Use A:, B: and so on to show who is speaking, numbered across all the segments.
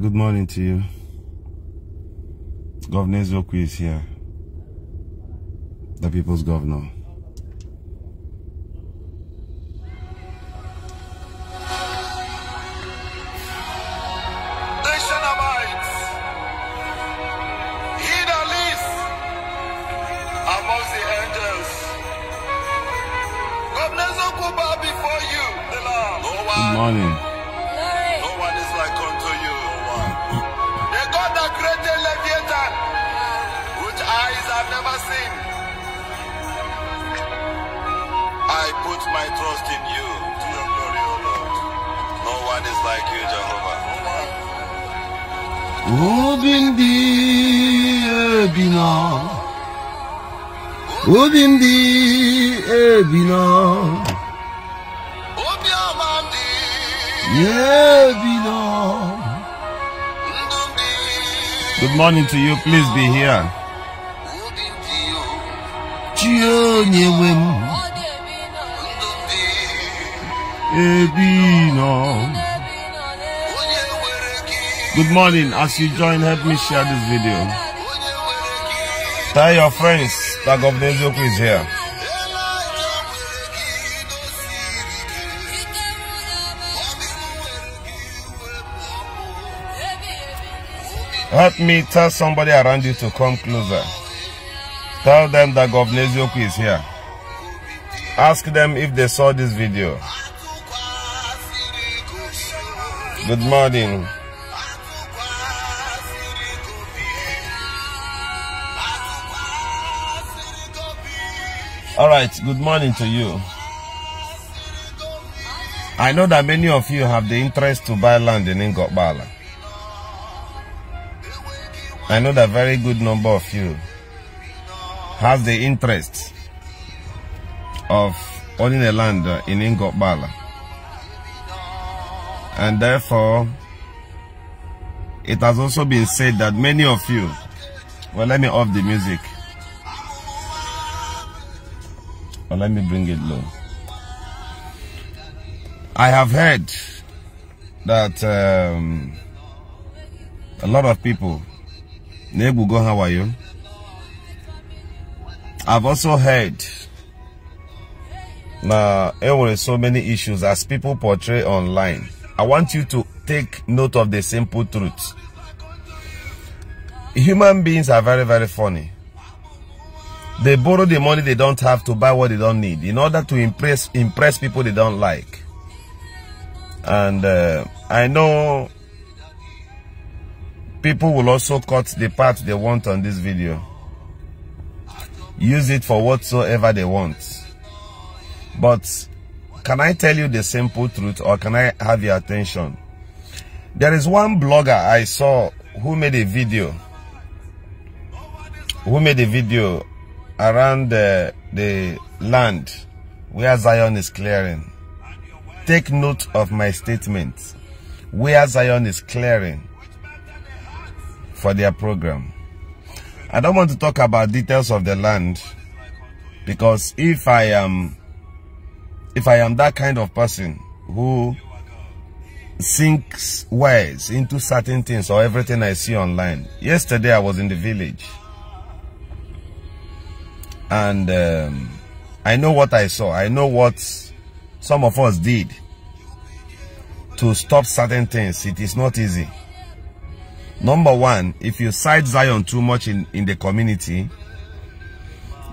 A: good morning to you. Governor Zoku is here, the people's governor. listening to you, please be here. Good morning. As you join, help me share this video. Tell your friends that God is here. Help me tell somebody around you to come closer. Tell them that Governor Ezioku is here. Ask them if they saw this video. Good morning. All right, good morning to you. I know that many of you have the interest to buy land in Ngokbala. I know that very good number of you have the interest of owning a land uh, in Ingobala. And therefore, it has also been said that many of you, well, let me off the music. well, let me bring it low. I have heard that um, a lot of people Nebugo, how are you? I've also heard now there were so many issues as people portray online. I want you to take note of the simple truth. Human beings are very, very funny. They borrow the money they don't have to buy what they don't need in order to impress impress people they don't like. And uh, I know People will also cut the part they want on this video. Use it for whatsoever they want. But can I tell you the simple truth or can I have your attention? There is one blogger I saw who made a video. Who made a video around the, uh, the land where Zion is clearing. Take note of my statement. Where Zion is clearing for their program. I don't want to talk about details of the land because if I am if I am that kind of person who sinks wise into certain things or everything I see online. Yesterday I was in the village and um, I know what I saw. I know what some of us did to stop certain things. It is not easy. Number one, if you side Zion too much in, in the community,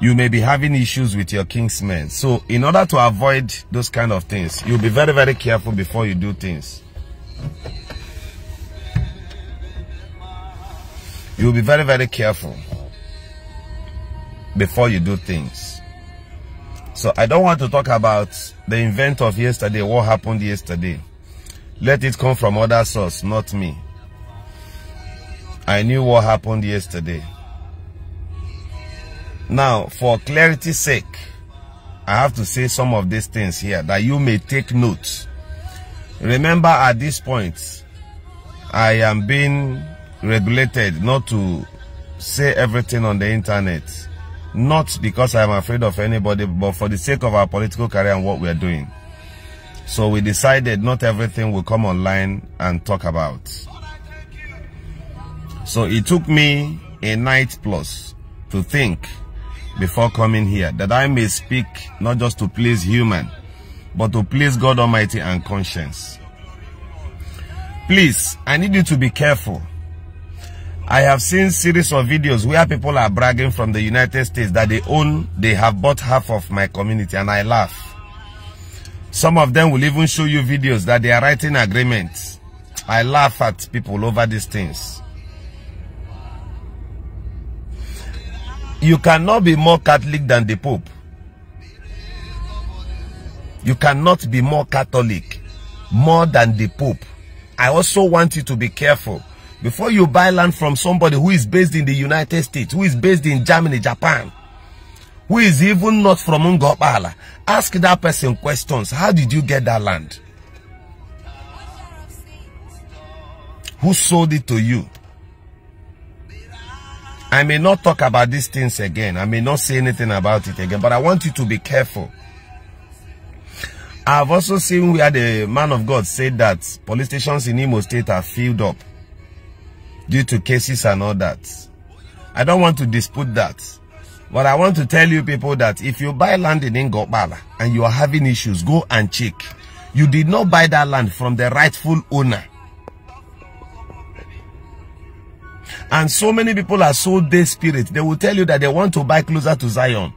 A: you may be having issues with your kingsmen. So in order to avoid those kind of things, you'll be very, very careful before you do things. You'll be very, very careful before you do things. So I don't want to talk about the event of yesterday, what happened yesterday. Let it come from other source, not me. I knew what happened yesterday. Now, for clarity's sake, I have to say some of these things here that you may take note. Remember at this point, I am being regulated not to say everything on the internet. Not because I'm afraid of anybody, but for the sake of our political career and what we're doing. So we decided not everything will come online and talk about. So it took me a night plus to think before coming here that I may speak not just to please human, but to please God Almighty and conscience. Please, I need you to be careful. I have seen series of videos where people are bragging from the United States that they own, they have bought half of my community and I laugh. Some of them will even show you videos that they are writing agreements. I laugh at people over these things. You cannot be more Catholic than the Pope. You cannot be more Catholic, more than the Pope. I also want you to be careful. Before you buy land from somebody who is based in the United States, who is based in Germany, Japan, who is even not from Ngopala, ask that person questions. How did you get that land? Who sold it to you? I may not talk about these things again. I may not say anything about it again, but I want you to be careful. I've also seen where the man of God said that police stations in Imo State are filled up due to cases and all that. I don't want to dispute that. But I want to tell you people that if you buy land in Ngobala and you are having issues, go and check. You did not buy that land from the rightful owner. And so many people are so desperate. They will tell you that they want to buy closer to Zion.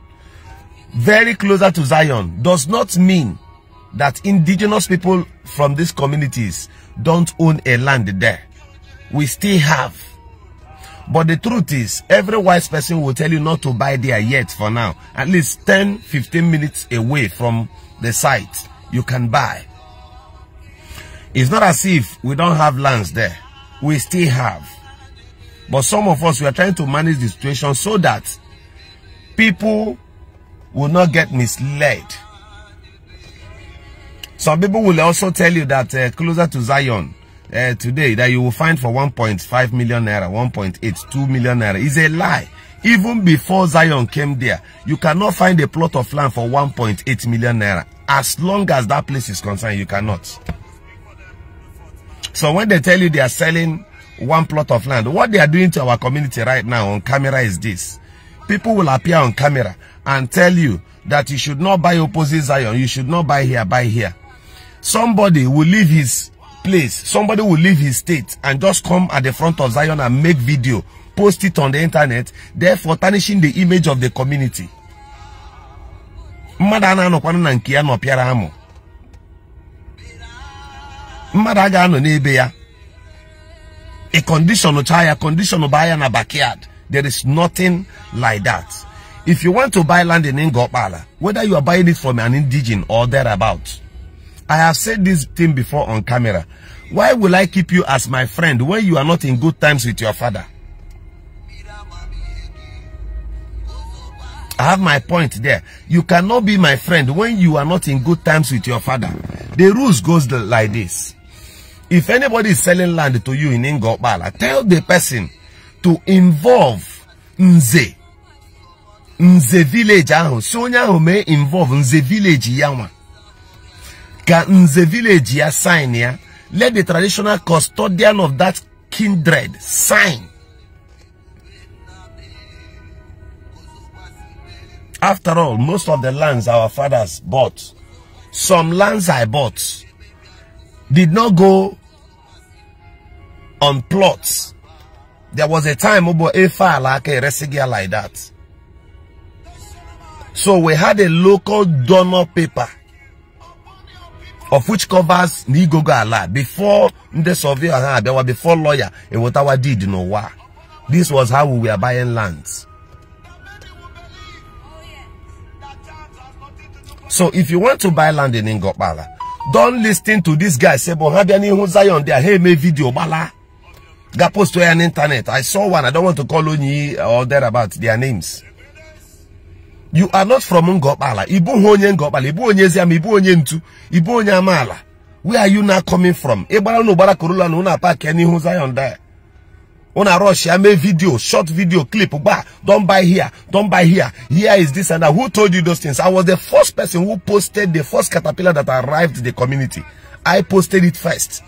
A: Very closer to Zion does not mean that indigenous people from these communities don't own a land there. We still have. But the truth is, every wise person will tell you not to buy there yet for now. At least 10, 15 minutes away from the site, you can buy. It's not as if we don't have lands there. We still have. But some of us, we are trying to manage the situation so that people will not get misled. Some people will also tell you that uh, closer to Zion uh, today that you will find for 1.5 million naira, 1.8, 2 million naira is a lie. Even before Zion came there, you cannot find a plot of land for 1.8 million naira. As long as that place is concerned, you cannot. So when they tell you they are selling one plot of land. What they are doing to our community right now on camera is this. People will appear on camera and tell you that you should not buy opposite Zion. You should not buy here, buy here. Somebody will leave his place. Somebody will leave his state and just come at the front of Zion and make video, post it on the internet, therefore tarnishing the image of the community. mmadụ no kwana anokwanu no nke ya nọpịara no nebea a condition of tire, condition of buyer in a backyard. There is nothing like that. If you want to buy land in Ngopala, whether you are buying it from an indigenous or thereabout, I have said this thing before on camera. Why will I keep you as my friend when you are not in good times with your father? I have my point there. You cannot be my friend when you are not in good times with your father. The rules goes like this. If anybody is selling land to you in Ingopala, tell the person to involve Nze. Nze village ahụ. Si involve Nze village ya Can Ka Nze village ya sign ya. Let the traditional custodian of that kindred sign. After all, most of the lands our fathers bought, some lands I bought, did not go on plots. There was a time Obo Efa a Resigia like that. So we had a local donor paper of which covers Nigogo Ala before the surveyor there were before lawyer and what our did you know why. This was how we were buying lands. So if you want to buy land in Ingopala, don't listen to this guy. Say, but have any Zion there? Hey, me video, bala. Got post to an internet. I saw one. I don't want to call you or about their names. You are not from Ngobala. Ibu onye Ngopala. Ibu onye Ziam. Ibu onye Ntu. Ibu onye Amala. Where are you now coming from? Ebala no bala kurula no na park any Zion there a rush I made video short video clip don't buy here don't buy here here is this and that who told you those things i was the first person who posted the first caterpillar that arrived the community i posted it first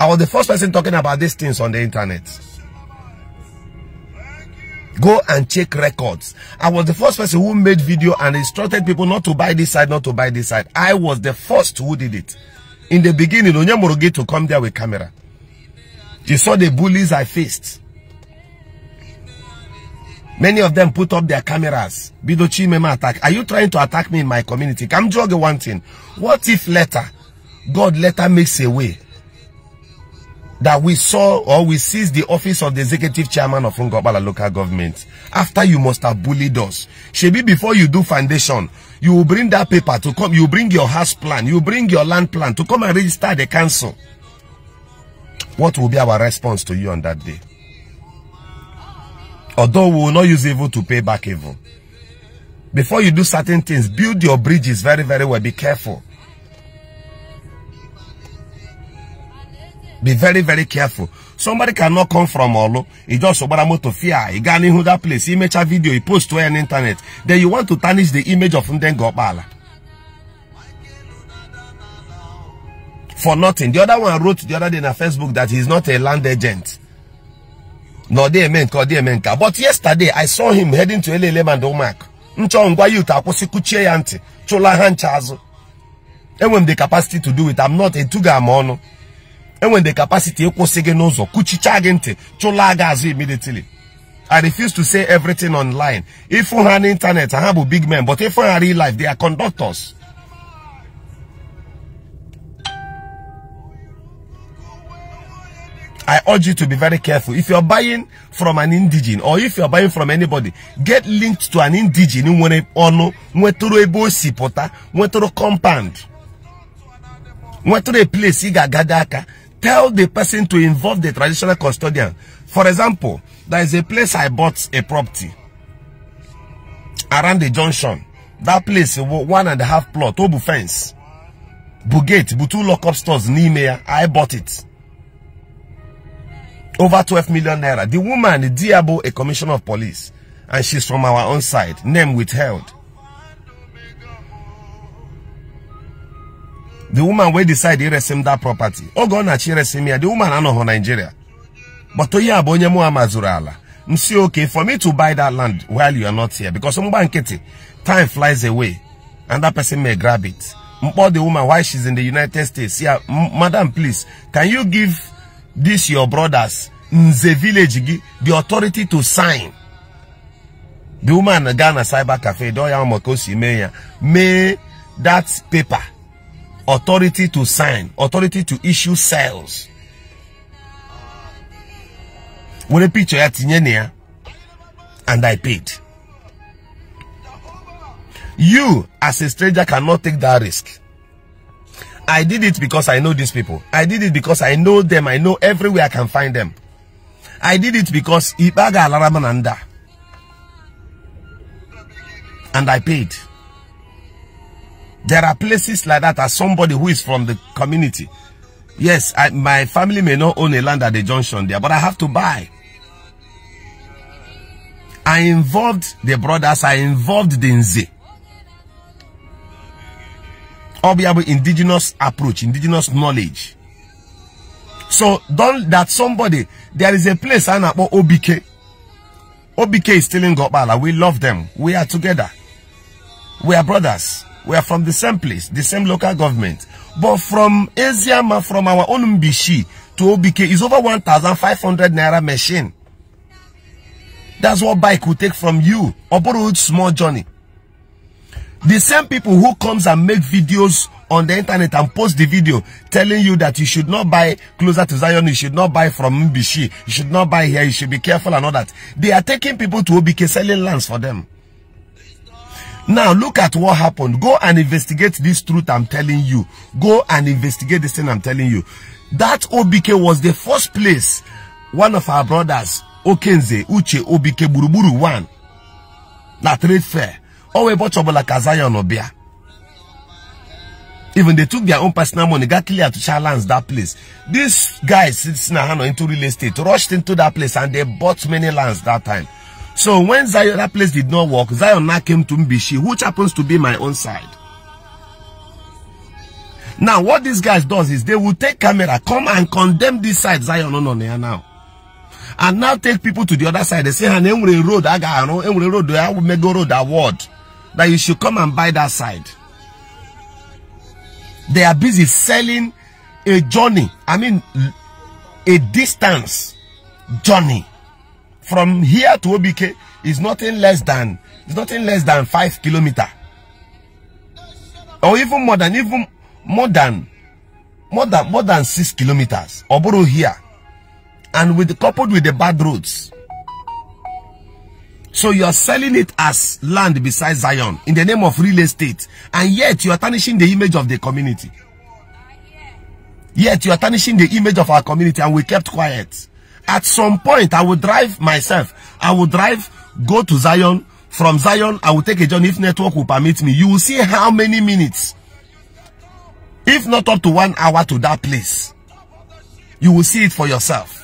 A: i was the first person talking about these things on the internet go and check records i was the first person who made video and instructed people not to buy this side not to buy this side i was the first who did it in the beginning onyemoroge to come there with camera You saw the bullies I faced. Many of them put up their cameras. Bidochi Mema attack. Are you trying to attack me in my community? Come drug one thing. What if later, God later makes a way that we saw or we seized the office of the executive chairman of Ngobala local government after you must have bullied us. Shebi, before you do foundation, you will bring that paper to come. You bring your house plan. You bring your land plan to come and register the council. What will be our response to you on that day? Although we will not use evil to pay back evil. Before you do certain things, build your bridges very, very well. Be careful. Be very, very careful. Somebody cannot come from Olo. He just about to fear. He got that place. He makes a video. He post to an internet. Then you want to tarnish the image of Ndengopala. for nothing. The other one wrote the other day in her Facebook that he's not a land agent. No, they meant, they meant. But yesterday, I saw him heading to LLM and OMAC. Nchọ ngwa youth akwụsị kuchie ya ntị the capacity to do it I'm not a tuga mono. And when the capacity ịkwụsị gị n'ụzọ kuchicha gị ntị immediately I refuse to say everything online. If on internet, I have a big man, but if on real life, they are conductors. I urge you to be very careful. If you're buying from an indigene or if you're buying from anybody, get linked to an indigene nwere ọnụ nwetụrụ ebe o si compound nwetụrụ place i tell the person to involve the traditional custodian. For example, there is a place I bought a property around the junction. That place, one and a half plot, Obu fence, Bugate, Butu lock-up stores, Nimea, I bought it over 12 million naira. The woman, the Diabo, a commissioner of police, and she's from our own side, name withheld. The woman will decide to resume that property. Oh God, resume resem The woman I know her Nigeria. But to ya bonye mu amazurala. Msi okay for me to buy that land while you are not here because mbanketi time flies away and that person may grab it. But the woman while she's in the United States. Yeah, madam please, can you give this your brothers in the village the authority to sign the woman gaa cyber cafe dọọ ya maka that paper authority to sign authority to issue sales a picture and i paid you as a stranger cannot take that risk I did it because I know these people. I did it because I know them. I know everywhere I can find them. I did it because Ibaga Alaramananda. And I paid. There are places like that as somebody who is from the community. Yes, I, my family may not own a land at the junction there, but I have to buy. I involved the brothers. I involved the Nze. Obiabo indigenous approach, indigenous knowledge. So don't that somebody, there is a place I know OBK. OBK is still in Gopala. We love them. We are together. We are brothers. We are from the same place, the same local government. But from Eziama, from our own Mbishi to OBK is over 1,500 Naira machine. That's what bike will take from you. A borrowed small journey. The same people who comes and make videos on the internet and post the video telling you that you should not buy closer to Zion, you should not buy from Mbishi, you should not buy here, you should be careful and all that. They are taking people to OBK selling lands for them. Now look at what happened. Go and investigate this truth I'm telling you. Go and investigate this thing I'm telling you. That OBK was the first place one of our brothers, Okenze, Uche, OBK, Buruburu, one, that trade fair. Owe bought trouble like Zion Obia. Even they took their own personal money, got clear to challenge that place. These guys it's now into real estate, rushed into that place and they bought many lands that time. So when Zion, that place did not work, Zion now came to Mbishi, which happens to be my own side. Now, what these guys does is they will take camera, come and condemn this side, Zion on no, no, now. And now take people to the other side. They say, and road, I got, road, I will make road award that you should come and buy that side. They are busy selling a journey, I mean, a distance journey from here to OBK is nothing less than it's nothing less than five kilometer or even more than even more than more than more than six kilometers Oboro here and with coupled with the bad roads so you are selling it as land beside Zion in the name of real estate. And yet you are tarnishing the image of the community. Yet you are tarnishing the image of our community and we kept quiet. At some point, I will drive myself. I will drive, go to Zion. From Zion, I will take a journey if network will permit me. You will see how many minutes. If not up to one hour to that place. You will see it for yourself.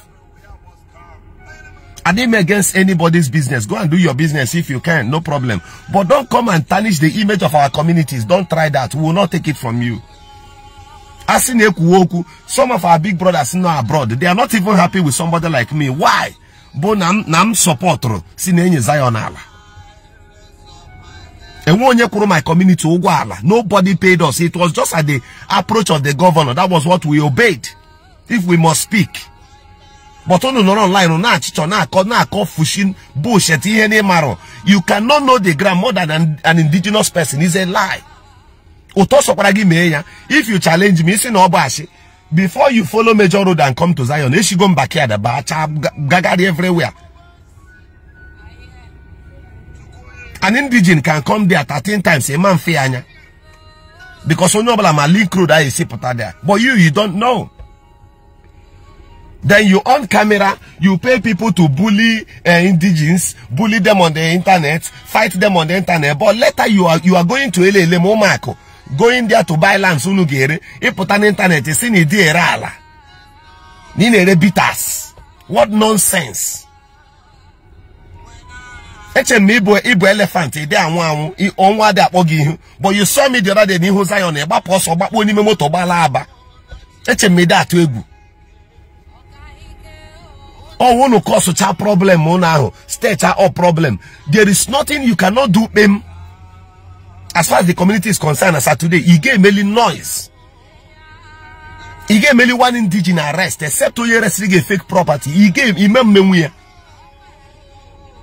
A: I didn't against anybody's business. Go and do your business if you can, no problem. But don't come and tarnish the image of our communities. Don't try that. We will not take it from you. Some of our big brothers now abroad, they are not even happy with somebody like me. Why? Bo nam support sinenye Zion my community Nobody paid us. It was just at the approach of the governor. That was what we obeyed. If we must speak but unu nọrọ online na-achịchọ na-akọ na-akọ fushin bullshit any maro. you cannot know the ground more than an indigenous person is a lie ụtọ sọkwara gị ya if you challenge me isi no ọ before you follow major road and come to Zion back here. The bacha gagari everywhere an indigenous can come there 13 times a man fee anya because onye ọbụla ma link road a esi pụta there but you you don't know then you on camera, you pay people to bully uh, bully them on the internet, fight them on the internet. But later you are you are going to Elele Momako, going there to buy land Sunugere, put on internet, you see rala. Ninere bitters. What nonsense. eche m ibu ibu elefant ịdị anwụ anwụ ọnwa dị akpọ but you saw me the other day n'ihu Zion ịgbapụ ọsọ gbakpuo n'ime moto gbala ba eche m ịdị or cause such a problem unu ahụ state or problem there is nothing you cannot do him. as far as the community is concerned as today i gave ga-emeli noise i gave ga-emeli one indigenous arrest except to resiri a fake property i gave him mmenwu ya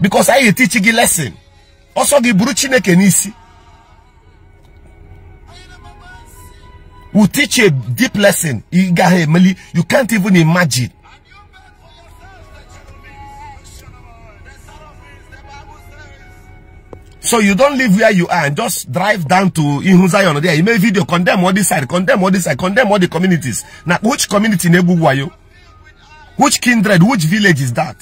A: because anyị teach a lesson Also, the Bruchine Kenisi. we teach a deep lesson you can't even imagine So you don't live where you are and just drive down to Ihun there. You make video, condemn all this side, condemn all this side, condemn all the communities. Now, which community in Ebu are you? Which kindred, which village is that?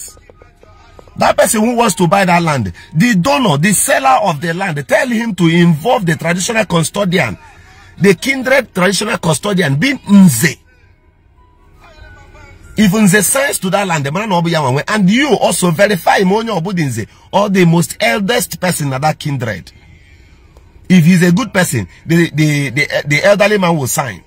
A: That person who wants to buy that land, the donor, the seller of the land, tell him to involve the traditional custodian, the kindred traditional custodian, Bin Nze even the signs to that land the man obu ya and you also verify him onye obudinze or the most eldest person in that kindred if he's a good person the the the, the elderly man will sign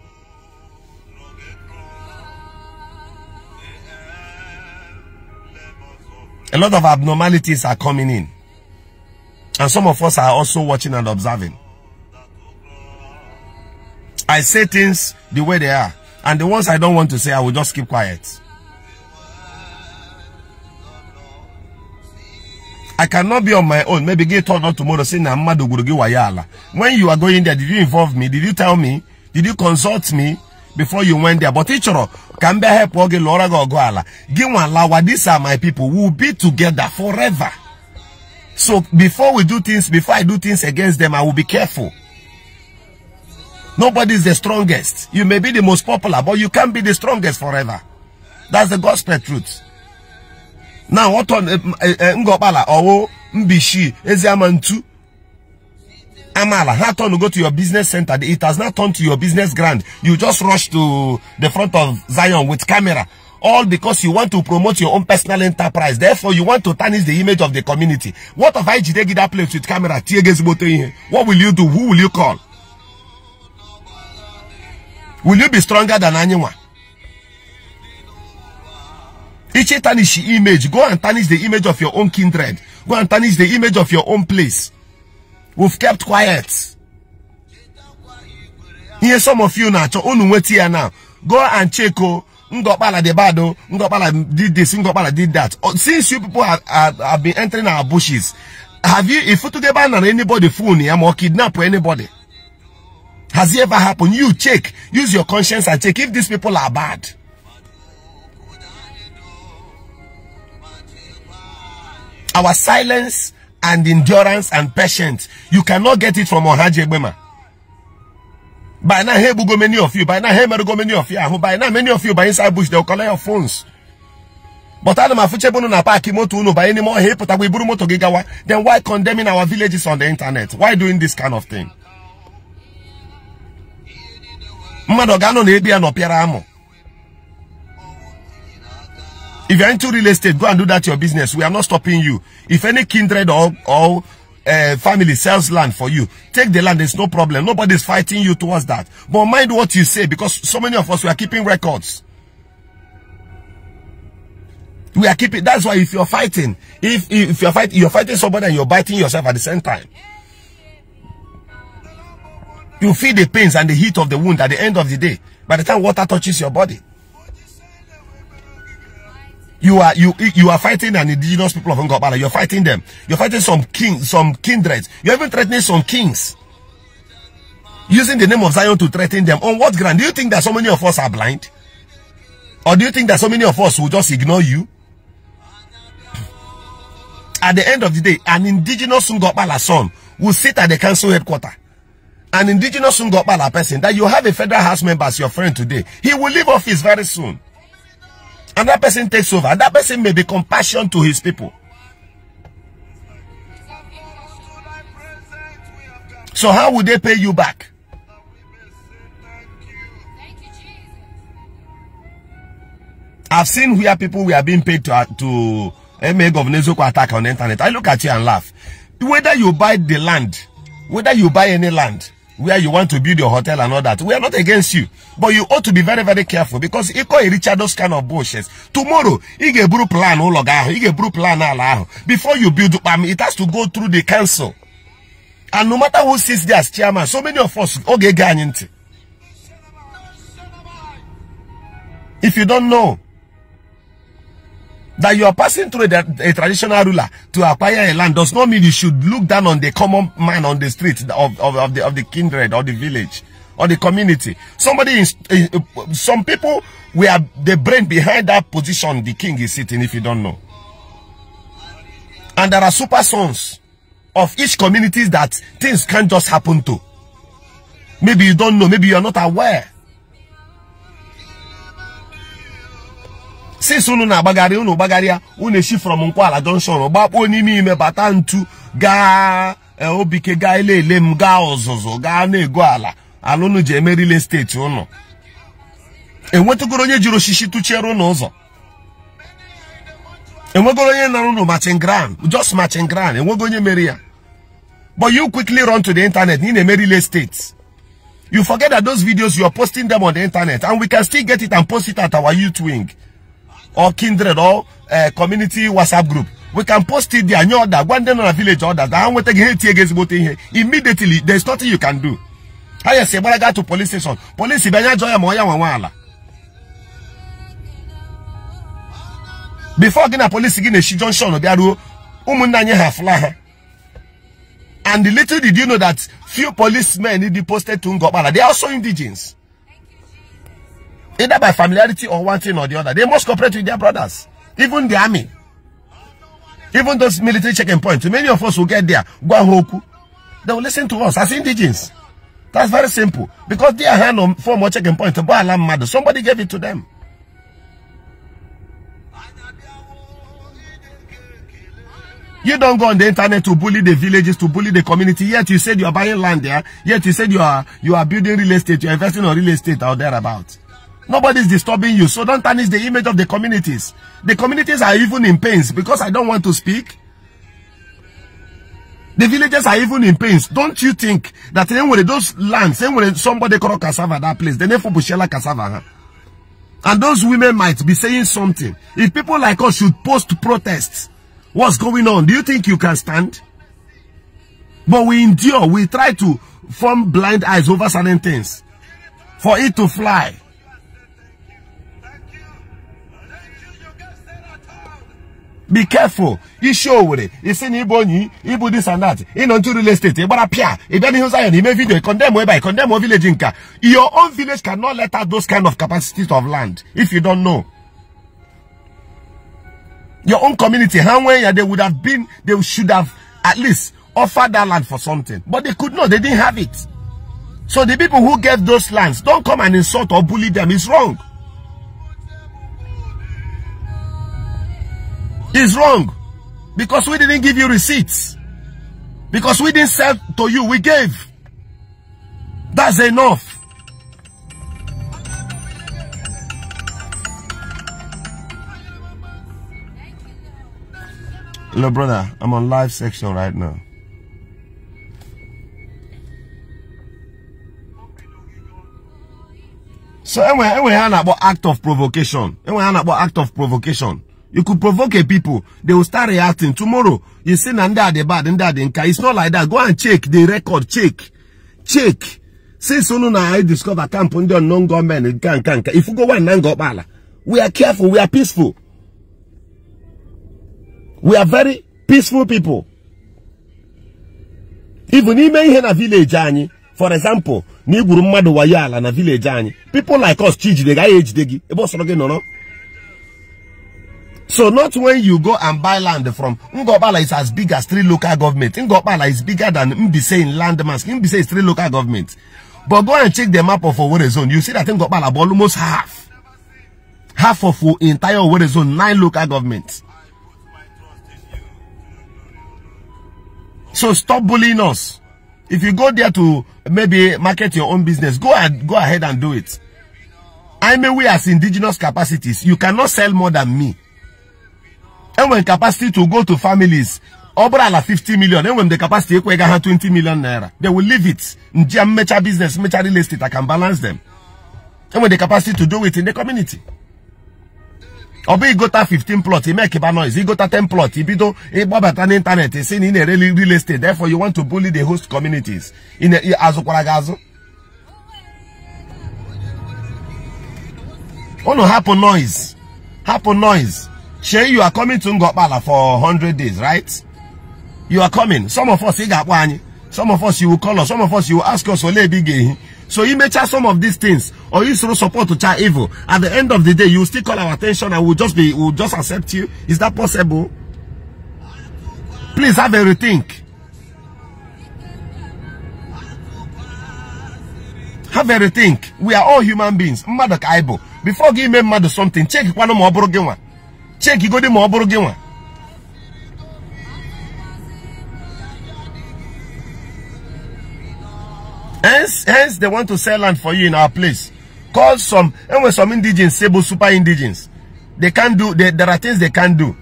A: a lot of abnormalities are coming in and some of us are also watching and observing i say things the way they are and the ones I don't want to say, I will just keep quiet. I cannot be on my own. Maybe get told on tomorrow saying Namadu Gurugi Wayala. When you are going there, did you involve me? Did you tell me? Did you consult me before you went there? But teacher, can be help oge Laura Gogoala. Gimwa Lawa, these are my people. We'll be together forever. So before we do things, before I do things against them, I will be careful. Nobody is the strongest. You may be the most popular, but you can't be the strongest forever. That's the gospel truth. Now, what on eh, eh, eh, Ngopala or Mbishi, Eziamantu, Amala, how turn go to your business center? It has not turned to your business grand. You just rush to the front of Zion with camera. All because you want to promote your own personal enterprise. Therefore, you want to tarnish the image of the community. What if I get that place with camera? What will you do? Who will you call? will you be stronger than anyone? Each tarnish image, go and tarnish the image of your own kindred. Go and tarnish the image of your own place. We've kept quiet. Here, some of you now, now. Go and check, oh, Ngopala de Bado, oh, Ngopala did this, Ngopala did that. Oh, since you people have, have, have been entering our bushes, have you, if you together a ban on anybody phone or kidnap anybody? Has it ever happened? You check. Use your conscience and check if these people are bad. Our silence and endurance and patience, you cannot get it from Ohaje Bema. By now, here, go many of you. By now, here, go many of you. By now, many of you by inside bush, they'll collect your phones. But Adam Afuchebunu na park uno by any more hey, put away moto Then why condemning our villages on the internet? Why doing this kind of thing? mmadụ ga-anọ na ebe ya nọ amụ if you're into real estate go and do that your business we are not stopping you if any kindred or, or uh, family sells land for you take the land there's no problem nobody's fighting you towards that but mind what you say because so many of us we are keeping records we are keeping that's why if you're fighting if if you're fighting you're fighting somebody and you're biting yourself at the same time you feel the pains and the heat of the wound at the end of the day. By the time water touches your body, you are you you are fighting an indigenous people of Ngobala. You're fighting them. You're fighting some kings, some kindreds. You're even threatening some kings. Using the name of Zion to threaten them. On what ground? Do you think that so many of us are blind? Or do you think that so many of us will just ignore you? At the end of the day, an indigenous Ngobala son will sit at the council headquarters an indigenous Ngopala person that you have a federal house member as your friend today, he will leave office very soon. And that person takes over. And that person may be compassion to his people. So how would they pay you back? I've seen where people were being paid to, uh, to eh, MA Governor Zoko attack on the internet. I look at you and laugh. Whether you buy the land, whether you buy any land, where you want to build your hotel and all that. We are not against you. But you ought to be very, very careful because call Richard those kind of bullshit. Tomorrow, Igebru plan oh, a blue plan ah, ah. Before you build um, it has to go through the council. And no matter who sits there as chairman, so many of us, okay, If you don't know, that you are passing through a, a, traditional ruler to acquire a land does not mean you should look down on the common man on the street of, of, of the, of the kindred or the village or the community. Somebody, is, some people we are the brain behind that position the king is sitting if you don't know. And there are super sons of each community that things can't just happen to. Maybe you don't know, maybe you're not aware. since unu na-agbagharị unu gbagharịa unu eshi from nkwala junction gbakpuo n'ime ime bata ntu gaa eh, obike gaa ele ele m gaa ọzụzụ gaa na-ego ala ala unu ji emerile steeti unu enwetụgoro onye jiri osisi tụchiere unu ụzọ enwegoro onye nara unu machin ground just machin enwego onye mere ya but you quickly run to the internet ị na-emerile steeti you forget that those videos you are posting them on the internet and we can still get it and post it at our youth wing. or kindred or uh, community whatsapp group we can post it there nye ọda One day on a village order, ka ha nweta gị ha etie gị ezigbote ihe immediately there's nothing you can do ha ah, yesi gbara gaa to police station Police bịa anya jụọ ya ma before gị na police, gị na-eshi junction bịa ruo ụmụnna anyị ha and little did you know that few policemen dị posted to Ngokpala they are also indigents Either by familiarity or one thing or the other. They must cooperate with their brothers. Even the army. Even those military checking points. Many of us will get there. Guanhoku. They will listen to us as indigens. That's very simple. Because they are hand on four more checking points. Somebody gave it to them. You don't go on the internet to bully the villages, to bully the community. Yet you said you are buying land there. Yet you said you are you are building real estate. You are investing on real estate out there about. Nobody's disturbing you. So don't tarnish the image of the communities. The communities are even in pains because I don't want to speak. The villagers are even in pains. Don't you think that anyway, those lands, anyway, somebody call cassava that place, they for Bushela cassava. Huh? And those women might be saying something. If people like us should post protests, what's going on? Do you think you can stand? But we endure. We try to form blind eyes over certain things. For it to fly. Be careful. You show with it. You see Ibonyi, Ibu this and that. In to real estate. Ibara Pia. Ibani Hussein, he may video. Condemn whereby. Condemn or village inka. Your own village cannot let out those kind of capacities of land if you don't know. Your own community, how when they would have been, they should have at least offered that land for something. But they could not, they didn't have it. So the people who gave those lands, don't come and insult or bully them. It's wrong. is wrong. Because we didn't give you receipts. Because we didn't sell to you, we gave. That's enough. Hello, brother. I'm on live section right now. So, anyway, anyway, about act of provocation. Anyway, about act of provocation. You could provoke a people. They will start reacting. Tomorrow, you see Nanda the bad, Nanda the nka. It's not like that. Go and check the record. Check. Check. Since soon I discover camp under non-government, if you go one Nangopala, we are careful. We are peaceful. We are very peaceful people. Even ime ihe village anyị, for example, na igburu mmadụ wayo ala na village anyị, people like us chi jide gaghị ejide gị ebe ọ sọrọ so not when you go and buy land from Ngobala is as big as three local governments. Ngobala is bigger than Mbise in landmass. Mbise is three local governments. But go and check the map of Owerri zone. You see that Ngobala almost half. Half of the entire Owerri zone, nine local governments. So stop bullying us. If you go there to maybe market your own business, go and go ahead and do it. I mean, we as indigenous capacities, you cannot sell more than me when capacity to go to families ọ bụrụ ala 50 million enwere m the capacity ekwe ga ha 20 million naira they will leave it njia mmecha business mmecha real estate I can balance them enwere the capacity to do it in the community ọ got igota 15 plot make kiba noise igota 10 plot ibido ịgbabata n'ịntanetị si na i in na-ere real estate therefore you want to bully the host communities In azụkwara gị azụ unu Happen noise Happen noise Shay, you are coming to Ngopala for 100 days, right? You are coming. Some of us, some of us, you will call us. Some of us, you will ask us, eh? so you may try some of these things, or you show support to try evil. At the end of the day, you still call our attention and we'll just be, we'll just accept you. Is that possible? Please have a rethink. Have a rethink. We are all human beings. Mmadụ Before give me mmadụ something, check one more broken one. Check ma ọ bụrụ gị one. hence hence they want to sell land for you in our place call some when some indigens sable super indigens they can not do they, there are things they can not do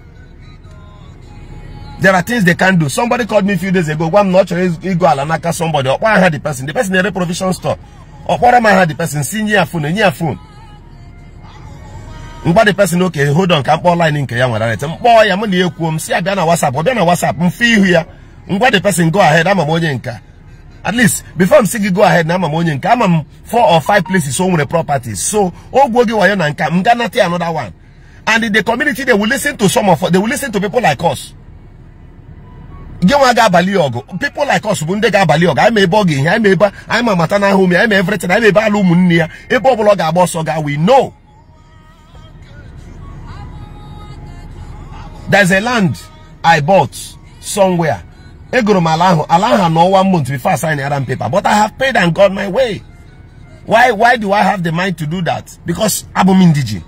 A: there are things they can not do somebody called me a few days ago Why m na not chọrọ ịgo ala n'aka somebody ọkpọ aha the person the person in a provision store am I had the person si nye phone enye phone mgba dị pesin oke hold on mkpọ nke ya nwere rete mkpọọ ya m na ya ekwuo m si ya na wasap ọ bịa na WhatsApp m fee ihu ya ngwa dị pesin go ahead ama m onye nka at least before m si gị go ahead na ama m onye nke ama m four or five places o nwere properties so ogwuo gị wayo na nka m ga nata another one and the community they will listen to some of they will listen to people like us gị nwa ga-abalị ọgụ people like us bụ ndị ga-abalị ọgụ anyị ma ebe ọ ga-ehi anyị ma ebe anyị ma mata ahụ m anyị ma everything anyị ma ebe ala ụmụnne ya ebe ọ bụla ọ ga-agba ọsọ ga we know there's a land I bought somewhere. Egoro Malahu, Alaha no one month before signing the paper, but I have paid and got my way. Why why do I have the mind to do that? Because Abumindiji.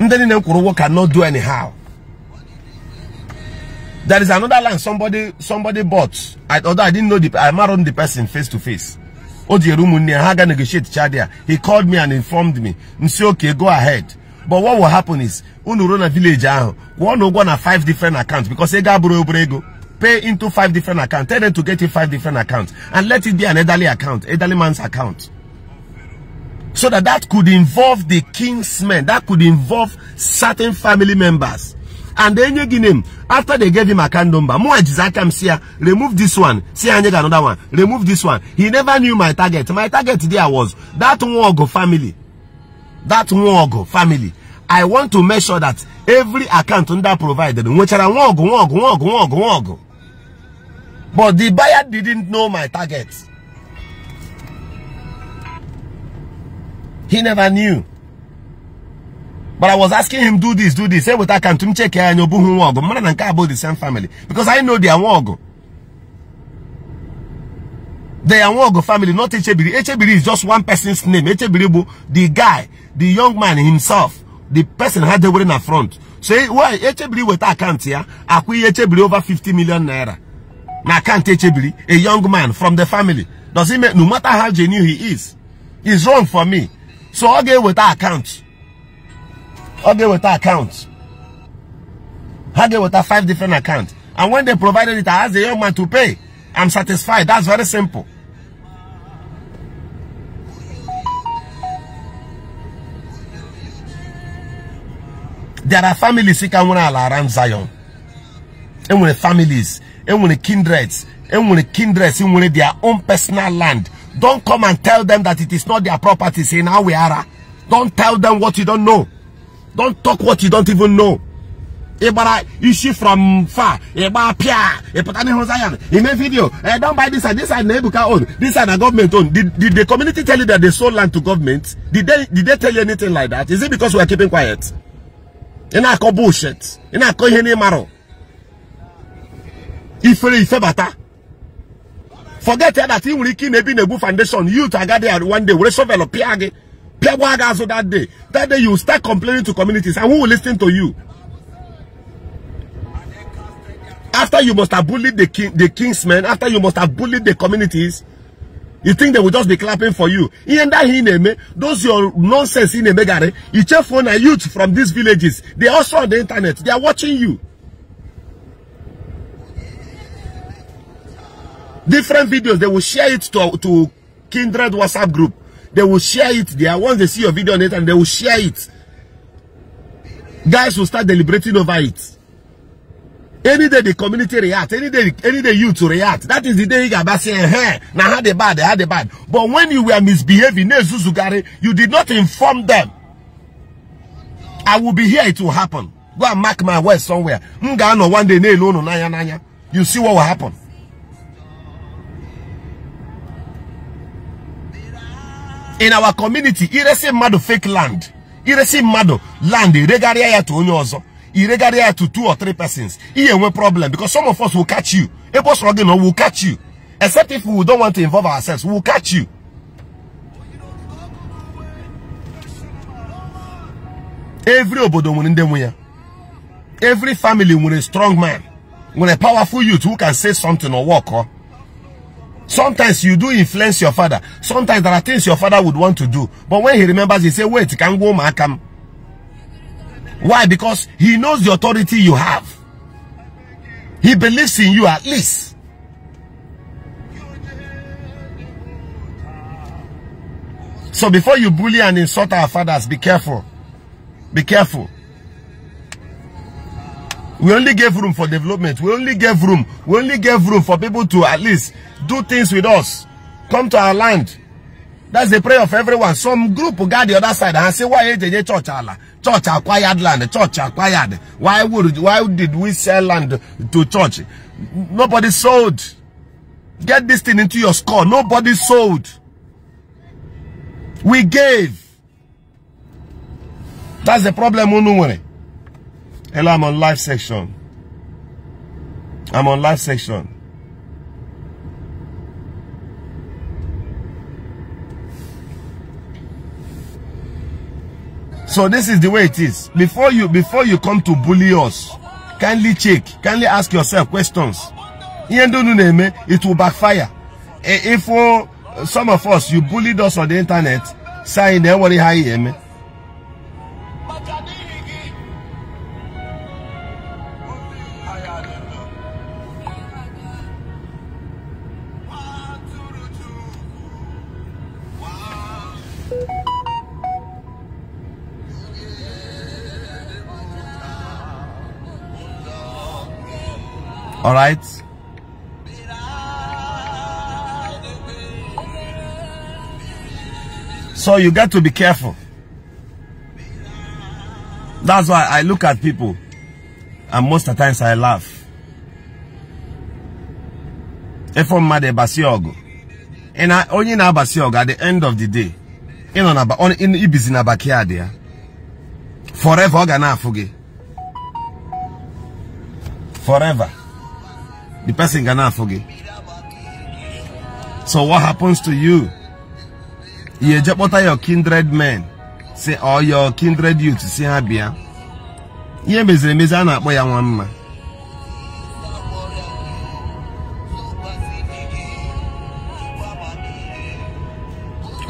A: Ndeni Nkuruwo cannot do anyhow. There is another land somebody somebody bought. I, although I didn't know the I married the person face to face. Odierumu Haga negotiate Chadia. He called me and informed me. "Okay, go ahead but what will happen is when you run a village ahụ kwụọ na five different accounts because ego abụrụ obere ego pay into five different accounts tell them to get you five different accounts and let it be an elderly account elderly man's account so that that could involve the king's men that could involve certain family members and then you give him after they gave him account number mụ ejizi aka m remove this one see I need another one remove this one he never knew my target my target there was that nwogụ family that Nwogo family, I want to make sure that every account under provided, Which nwechara Nwogo, Nwogo, Nwogo, Nwogo, Nwogo. But the buyer didn't know my target. He never knew. But I was asking him, do this, do this. Say, what I can check here, and you'll be the same family. Because I know they are Nwogo. They are one of the family, not Echebiri. Echebiri is just one person's name. Echebiri, the guy, the young man himself, the person had the wedding in front. Say, why Echebiri with account here? Akwi Echebiri over 50 million naira. Na account Echebiri, a young man from the family. Does it make, no matter how genuine he is, he's wrong for me. So I'll get with that account. I'll get with that account. I'll get with that five different accounts. And when they provided it, I asked the young man to pay. I'm satisfied. That's very simple. There are families you can around Zion. And when families, and when kindreds, and when kindreds, and when their own personal land, don't come and tell them that it is not their property. Say now we are. Don't tell them what you don't know. Don't talk what you don't even know. ịgbara eh, isi from far ịgba pịa ịpụta n'ihu zion ime vidio e don buy this side this side na ebuka own this side na government own did, did the community tell you that they sold land to government did they, did they tell you anything like that is it because we are keeping quiet ị na-akọ bullshit ị na-akọ ihe n'ịmarụ ifere ifebata forget that ị nwere ike ị na-ebi na-egbu foundation youth agadi one day were shovel pịa gị pịagwa gị azụ that day that day you start complaining to communities and who will listen to you after you must have bullied the king, the kingsmen, after you must have bullied the communities, you think they will just be clapping for you. In that Hineme, those your nonsense in Megare, Ichefona youth from these villages, they also on the internet, they are watching you. Different videos, they will share it to, to kindred WhatsApp group. They will share it there. Once they see your video on it, and they will share it. Guys will start deliberating over it. any day the community react any day any day you to react that is the day you gaba hey now how the bad had the bad but when you were misbehaving you did not inform them i will be here it will happen go and mark my words somewhere no one day no no nanya nanya you see what will happen in our community iresi mmadụ fake land iresi mmadụ land iregharịa ya to onye ọzọ he regarded to two or three persons. He have no problem because some of us will catch you. A boss Rogino will catch you. Except if we don't want to involve ourselves, we'll catch you. Every obodo nwere ndị Every family a strong man, with a powerful youth who can say something or walk. Huh? Sometimes you do influence your father. Sometimes there are things your father would want to do. But when he remembers, he say, wait, can go come. Why? Because he knows the authority you have. He believes in you at least. So before you bully and insult our fathers, be careful. Be careful. We only gave room for development. We only gave room. We only gave room for people to at least do things with us. Come to our land. That's the prayer of everyone. Some group got the other side and say, why AJJ church Allah? Church acquired land. Church acquired. Why would why did we sell land to church? Nobody sold. Get this thing into your score. Nobody sold. We gave. That's the problem, Unuwere. Hello, I'm on live section. I'm on live section. So this is the way it is. Before you before you come to bully us, kindly check, kindly ask yourself questions. It will backfire. E, if uh, some of us you bullied us on the internet, saying everybody high All right. So you got to be careful. That's why I look at people and most of the times I laugh. Efo mmadu ebasi ogu. Ina onye na abasi ogu at the end of the day. Ino na on in ibizi na backyard Forever oga Forever. The person cannot forget. So what happens to you? You jeopardize your kindred men, say all your kindred youth, to see bia. Ihe meziri emezi a na-akpọ ya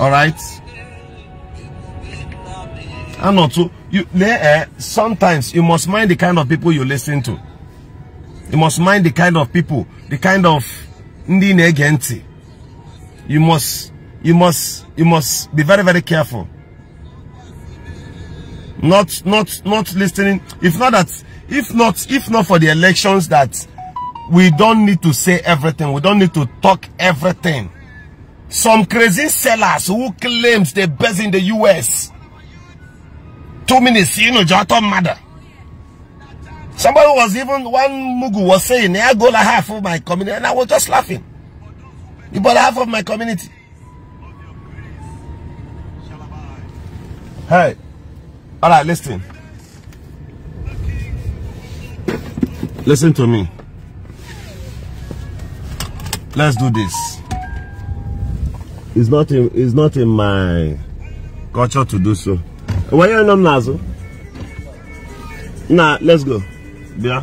A: Alright? I'm not too. You, eh, sometimes you must mind the kind of people you listen to. You must mind the kind of people, the kind of ndị You must, you must, you must be very, very careful. Not, not, not listening. If not that, if not, if not for the elections that we don't need to say everything. We don't need to talk everything. Some crazy sellers who claims they're based in the U.S. Two minutes, you know, Jato mother. Somebody was even, one Mugu was saying, I go like half of my community. And I was just laughing. You bought half of my community. Hey. All right, listen. Listen to me. Let's do this. It's not in, it's not in my culture to do so. Why are you not Now, let's go. Bien.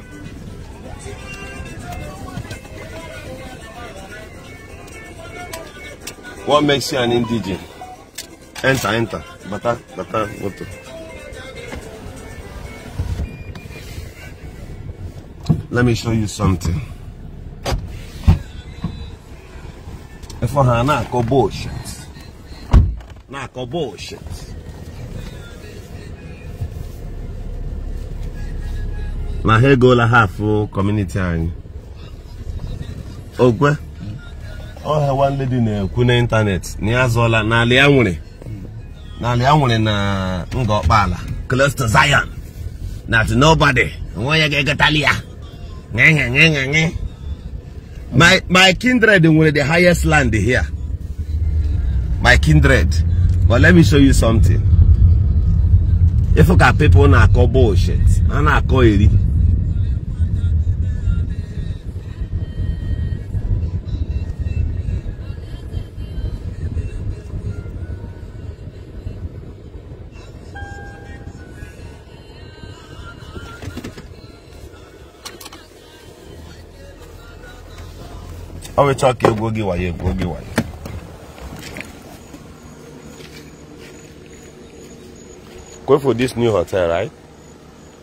A: you an indigenous. Enter, enter. Bata, bata, moto. Let me show you something. If I had not go bullshit. Not go bullshit. na ha egola hafụ kọmuniti anyị ogwe ọha nwanne dị na-ekwu n'ịntanetị na ya zụọla n'ala ya nwere n'ala ya nwere na close to zion na nobody nwa ya ga nye ya my my kindred nwere the highest land here my kindred but let me show you something ịfụ ka people na-akọ bullshit a na-akọ eri ọ wechọ to egwu oge wayo egwu oge wayo Go for this new hotel, right?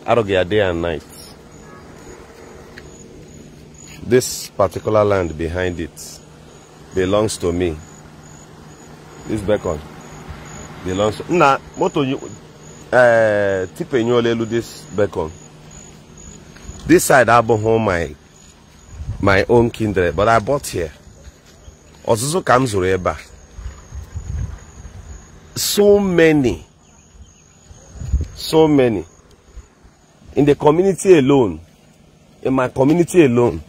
A: I Arugea a day and night. This particular land behind it belongs to me. This beacon belongs to Nah, moto you uh eh, tipe nyolelu this beacon. This side I abụghị my my own kindred but I bought here ọzụzụ ka m zụrụ ebe a so many so many in the community alone in my community alone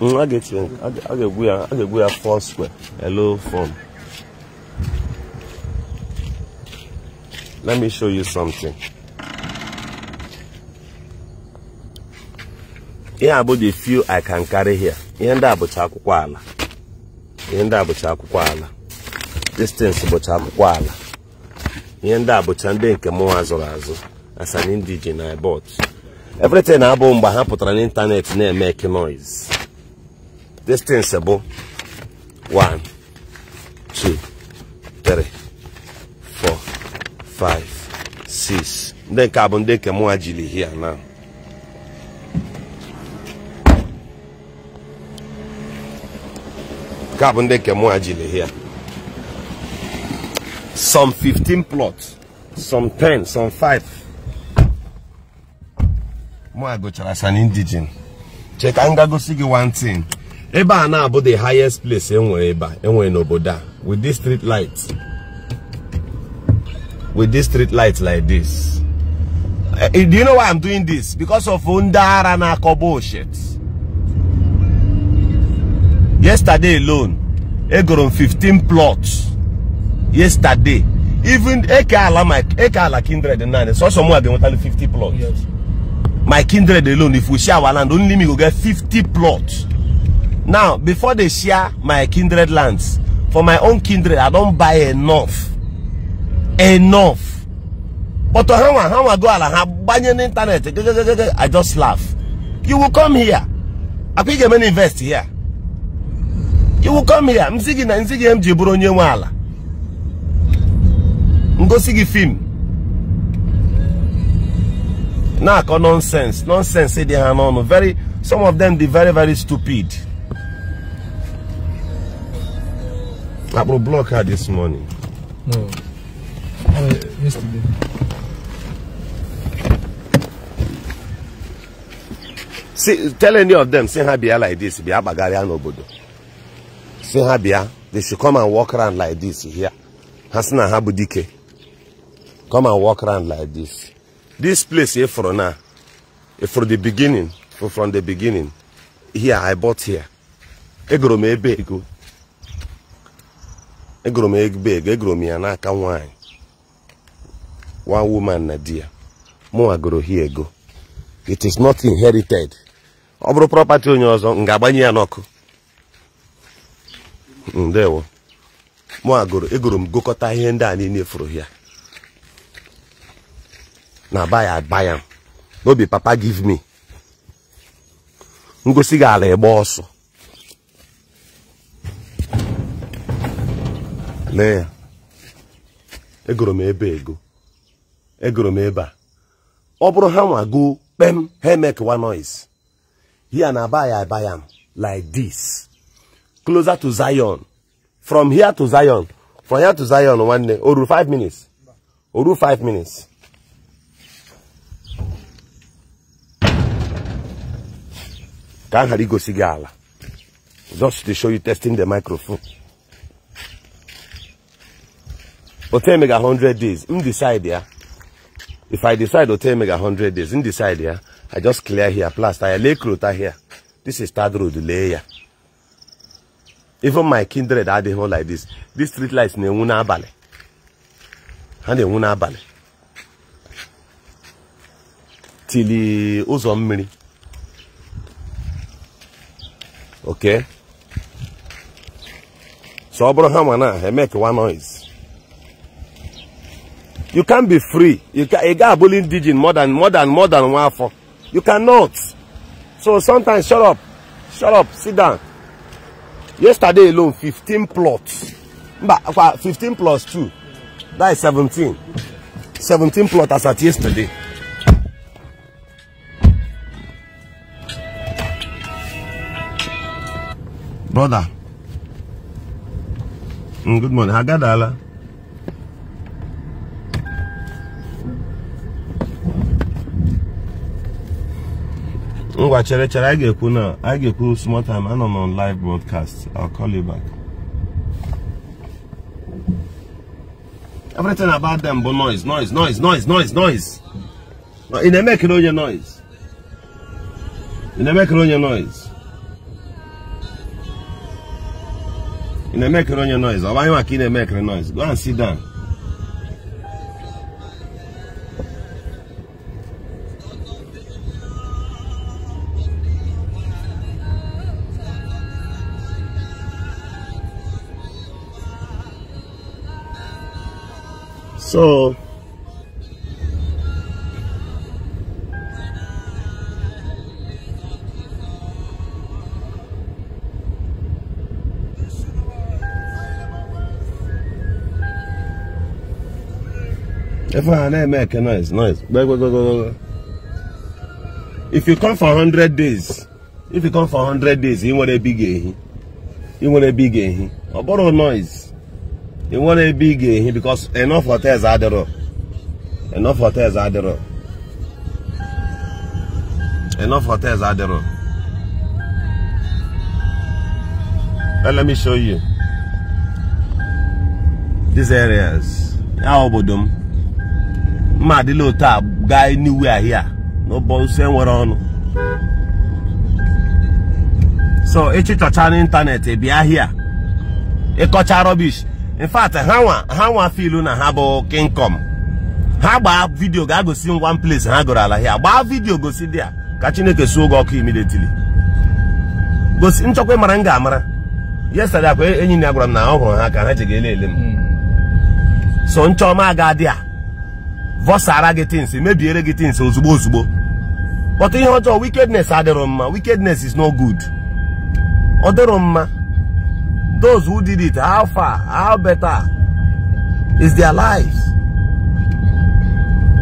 A: a ga-egbu ya a ga-egbu ya four square hello form let me show you something ihe a bụ the few I can carry here ihe ndị a bụcha akwụkwọ ala ihe ndị a bụcha akwụkwọ ala distance bụcha akwụkwọ ala ihe ndị a bụcha ndị nke mụnwa zụrụ azụ as an indigene I bought everything na-abụ mgbe ha pụtara n'ịntanetị na-eme eke noise distance bụ 1 2 3 4 5 6 ndị nke a bụ ndị nke mụnwa jiri hia now some 15 plots some 10 some 5 mụa gụchara san indigen Check m gagosi gị one thing ebe na abo the highest place enwere ebe enwere n'obodo with this street light with this street light like this eh, eh, do you know why i'm doing this because of ndara na-akọ bullshit yesterday alone egoro 15 plots yesterday even eke ala my eke ala kindred nine so some wey they want 50 plots yes. my kindred alone if we share our land only me go get 50 plots now before they share my kindred lands for my own kindred i don't buy enough enough but how how I go ala ha gbanye internet. i just laugh you will come here I think ga-eme na invest here iwu come here m si gị na nsi gị m ji bụrụ onye nwe ala ngosi gị fim na-akọ nonsense nonsense dị ha n'ọnụ very some of them dị very very stupid akpụrụ block ha this morning no oh, yesterday See, tell any of them say ha bịa like this bịa kpagharịa n'obodo si ha bịa they should come and walk around like this here ha si na ha bụ dike come and walk around like this this place efuru na efuru the beginning from the beginning here i bought here egoro m ebe ego egoro m ebe ego egoro m ya n'aka nwanyị one woman na di ya mụnwa goro hie ego it is not inherited ọ bụrụ property onye ọzọ m ga-agbanye ya n'ọkụ ndewo mụ agụrụ egoro m gụkọta ihe ndị a niile furu ya na baya abaya n'obi papa give me ngosi gị ala ịgba ọsọ lee ya egoro m ebe ego egoro m ebe a ọ bụrụ ha nwa goo kpem ha emekewa noise ya na abaya abaya m like this closer to Zion from here to Zion from here to Zion One day. oru five minutes oru five minutes. ka m ghara igosi gị just to show you testing the microphone. otu mega hundred days m decide ya if i decide otu mega hundred days m decide ya i just clear here plaster I lay krota here this is third road layer even my kindred adịghị hụ like this this street light na-enwu n'abalị ha na-enwu n'abalị tili ụzọ mmiri okay so ọ bụrụ ha ma make one noise you can't be free you can ị ga-abụli indigene more than more than more than one afọ you cannot so sometimes shut up shut up sit down yesterday alone fifteen plots mba fifteen plus two that is seventeen seventeen plots as at yesterday. brother mm, good morning hagadala. ngwa chere chere anyị ga-ekwu na anyị ga-ekwu small time anọ live broadcast I'll call you back everything about them bụ noise noise noise noise noise noise ị na onye noise ị na onye noise ị na onye noise ọ bụ anyị maka ị na-emekere noise go and sit down So If I not make noise, noise. Go, go, go, go, go. If you come for 100 days, if you come for 100 days, you want a big, you want a big, a borrow noise. ị nwere ebe ị ga-ehi because enough hotels adịrọ enough hotels adịrọ enough hotels adịrọ let me show you these areas ya obodo m mma adịla otu a gaa anywhere ahịa n'ụbọchị nwere ọnụ so echi chọcha n'ịntanetị bịa ahịa ịkọcha rubbish in fact ha nwa ha nwa filu na ha bụ kingcom ha gbaa vidio ga-agosi m one place ha gụrụ ala ya gbaa vidio gosi dị a ka chineke suo oge ọkụ immediately gosi nchọkwa ịmara m ga-amara yesterday akwa enyi ya gwara m na ọ hụrụ ha ka ha ji ga-ele ele m hmm. so nchọma aga dị a vọsara gị tins mebiere gị tins ozugbo ozugbo kpọta ihe ọjọọ wikednes adịrọ mma wickedness is no good ọ dịrọ mma those who did it, how far, how better is their lives.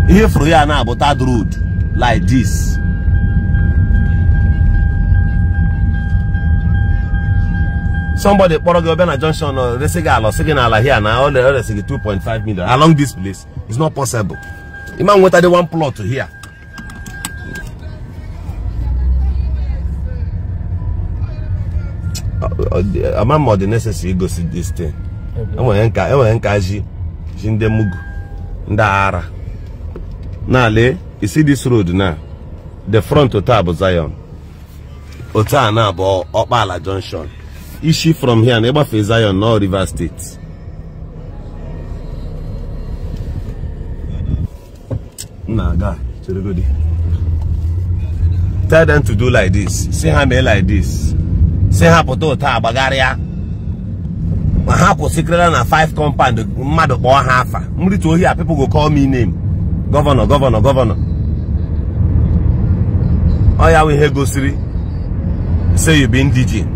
A: If we are now about that road like this, somebody kpọrọ gị ọbịa na junction ọ resị gị ala ọsị gị n'ala hia na ọ resị 2.5 million along this place it's not possible. Imagine what nweta dị one plot here. ama m ọ dị necessary igosi this thing enwere e e nka ji ji ndị mugu ndị ara na lee e, isi dis road na the front otu a bụ Zion otu a na bụ Ọkpala Junction ishi from here na ịgbafe Zion na Rivers State na-aga tell them to do like this see ha mee like this si hapụta ụta agbagharịa ma ha kwụsịkịrịla na 5 compound mmadụ kpọọ ha afa mrịta ohi a people go call me name gọvanọ gọvanọ gọvanọ ọ ya ihe gosiri say you be indigene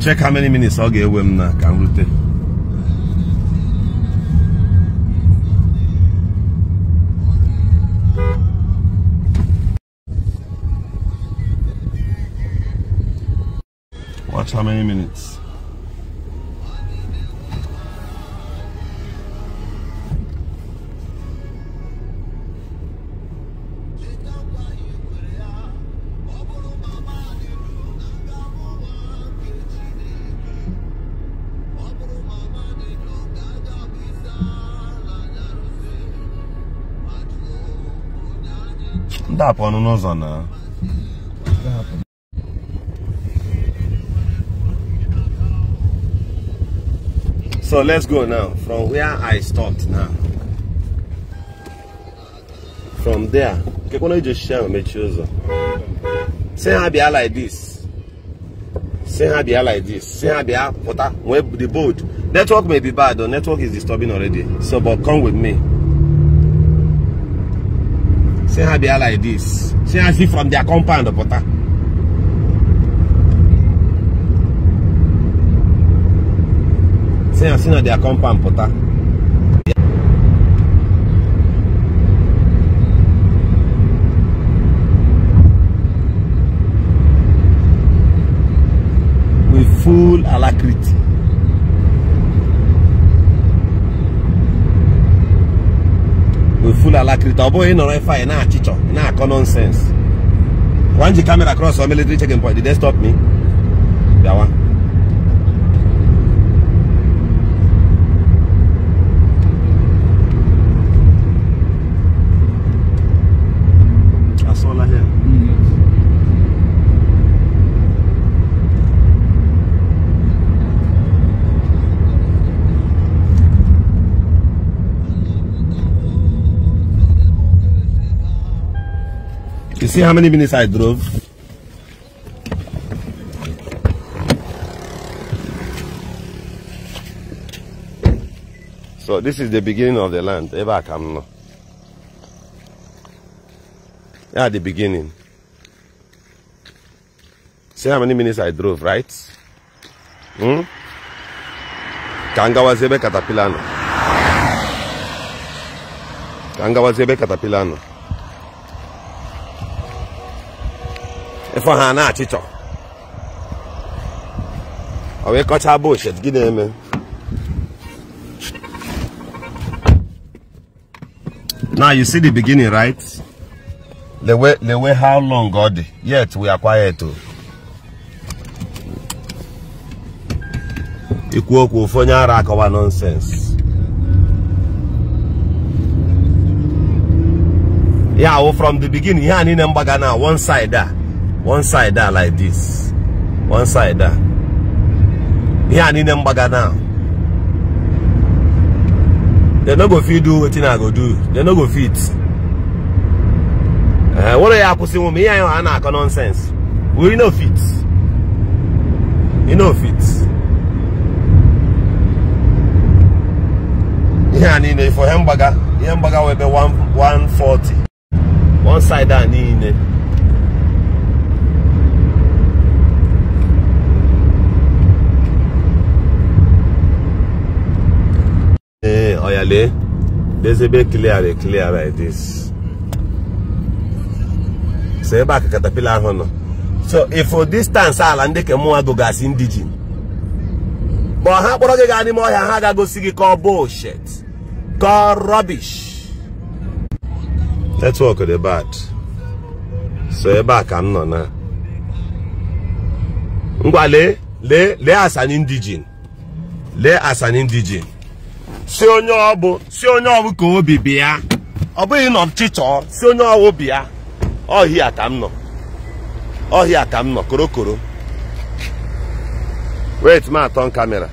A: check how many minutes ọ ga-ewe m na ka m rute Watch how many minutes. Dá pra não usar, So let's go now from where I stopped now. From there, okay, why don't just share my chosen? Say I be like this. Say I be like this. Say I be water web the boat. Network may be bad though. Network is disturbing already. So but come with me. Say I be like this. Say I see from their compound, the uh, water. si na si na their with full alacrity with full alacrity ọ bụghị ịnọrọ ife anyị na-achịchọ na-akọ nonsense one ji camera across our military checking point did they stop me one. You see how many minutes I drove? So this is the beginning of the land. Ever come now. At the beginning. See how many minutes I drove, right? Hmm? Kangawazebe Katapilano. Kangawazebe Katapilano. ịfọ ha na achịchọ ọ wee kọchaa bullshit gị na-eme now you see the beginning right the way. how long God? yet we are quiet o oh. ikwu okwu ofu onye ara nonsense Yeah, oh, from the beginning yeah, a niile mgbaga na one side ah. one side there like this one side there I need them bagger now They're not gonna fit do wetin i go do They're not gonna fit ee were ya akwụsịnwu m ihe anyị a na-akọ nonsense we know fit You know fit ihe a niile for hamburger. Hamburger will mgbaga wee be 140 one side a niile clearly there's a bit clearly clear like so ebe a katapila ahụ nọ so ifo distance ala ndị ke mụnwa gogasị ndị ji ma ọha kpọrọ gị gaa n'ime ọhịa ha ga-agosi gị ka ọ bullshit ka ọ rubbish network dị bad so ebe a ka na ngwa lee lee lee as an indigene si onye ọbụ si onye ọbụ ka obi bịa ọ bụghị na ọchịchọ si onye ọwụ bịa ọhịa ka m nọ ọhịa ka m nọ korokoro wait ma atọn kamera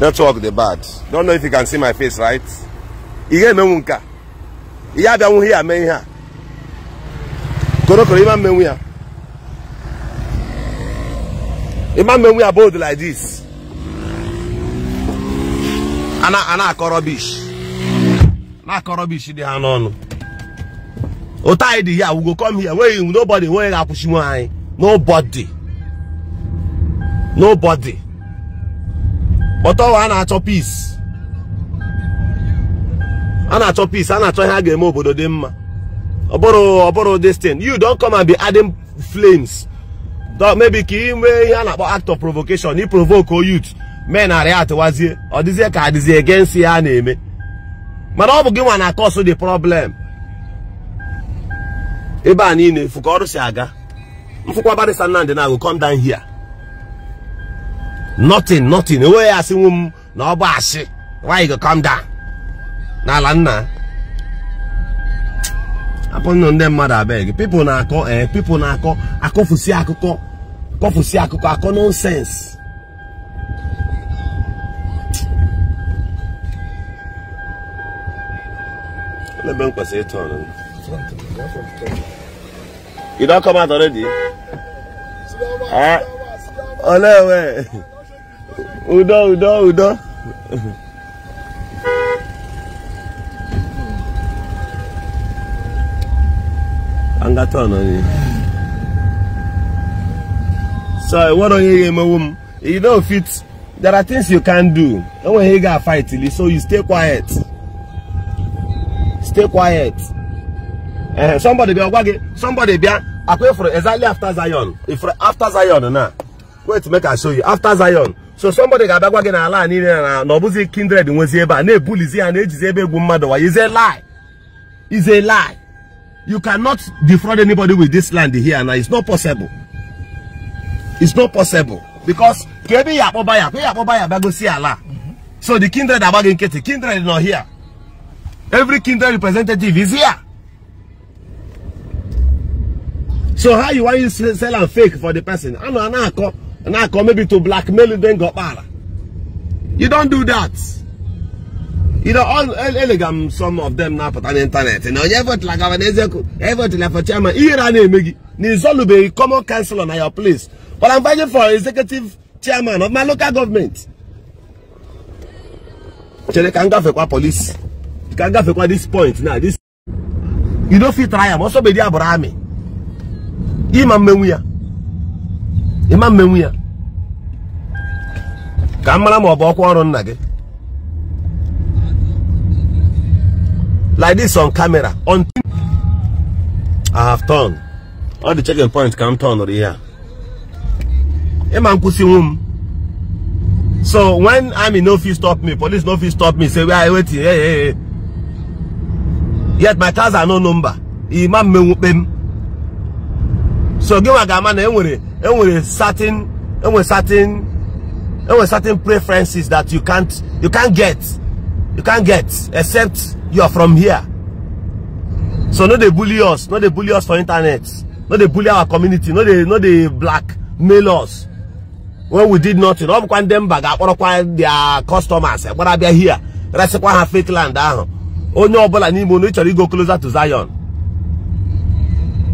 A: network dey bad don't know if you can see my face right ihe emenwu nke a ihe abịanwụ ihe ame ihe a korokoro ime mmenwu ya a man when we are bold like this ana ana akọ rubbish na akọ rubbish dị ha n'ọnụ anyị dị ya we go come here nweghị nobody nweghị ga-akwụchi nwe anyị nobody nobody but ọwa a na-achọ peace a na-achọ peace a na-achọ ihe a ga-eme obodo dị mma ọ bụrụ ọ you don come and be adding flames mebi ka inwe nwee ihe a na-akpọ act of provocation provoko provoke youth men narị atụwazie ọ dịzie ka adịzie against ya na-eme mana ọ bụ gị nwa na cause dị problem ebe a niile efu ka ọrụ si aga mfụkwa barịsa nnamdị na agụ come down here nothing nothing enweghị asị nwu m na ọ bụ asị why you go come n'ala nna apụ ndị mmadụ abịa gị na-akọ ee na-akọ akọfusi akụkọ akụkọ akọ nọnsensị ebe m kwesịrị ịtụ ọnụ you come eh? ole udo ka m ga tọn so what onye ga-emewu m you don't fit there are things you can do enweghị ị ga-afight so you stay quiet stay quiet eh somebody bịa gwa gị somebody bịa akwa ifuru e exactly after Zion ifuru e after Zion na wait make I show you after Zion so somebody ga-abịa gwa gị na ala niile na na ọbụzi kindred nwezi ebe a na-ebulizi ya na-ejizi ebe egwu mmadụ wa is lie is lie You cannot defraud anybody with this land here now. It's not possible. It's not possible. Because kebi yapo baya, kebi yapo baya bago si Allah. So the kindred are bagging Katie. Kindred is not here. Every kindred representative is here. So how you want you sell and fake for the person? I know, I come, I call, maybe to blackmail you, then go para. You don't do that. You know, all elegam some of them now put on the internet. You know, effort like an effort like for chairman. Here I name Megi. Nizolu be common council on your place. But I'm fighting for executive chairman of my local government. ka ngafe kwa police. ngafe kwa this point now. This you don't fit try am. Also be there Abraham. Imam Menwia. Imam ya? Ka mara ma ọ bụ ọkwa ọrụ nna like this on camera until I have turned. All the checking points can turn over here. So when I'm in, no fit stop me, police no fit stop me, say we are waiting. Hey, hey, hey. Yet my cars are no number. Imam me wupem. So give my gaman enwere enwere certain enwere certain enwere certain preferences that you can't you can't get. you can't get except you are from here so no they bully us no they bully us for internet no they bully our community no they, no they blackmail us when we did nothing ọ bụkwa ndị mba ga-akpọrọkwa their customers are they here resịkwa ha fake land ahụ onye ọbụla n'ime unu chọrọ go closer to Zion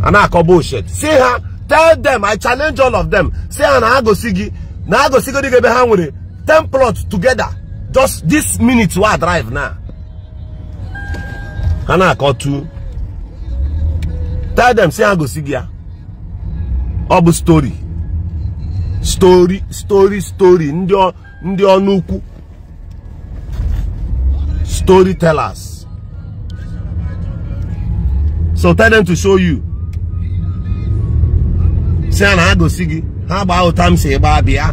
A: a na-akọ bullshit See her? tell them I challenge all of them say ha na ha gosi gị na ha gosigodị gị ebe ten plots together just this minute wey i drive now ha I call tu tell them say ha gosi gị ya ọ story. Story. Story. Story. Ndio. Ndio nuku. Storytellers. so tell them to show you say I go see. gosi gị ha gbaa ụta m si gbaa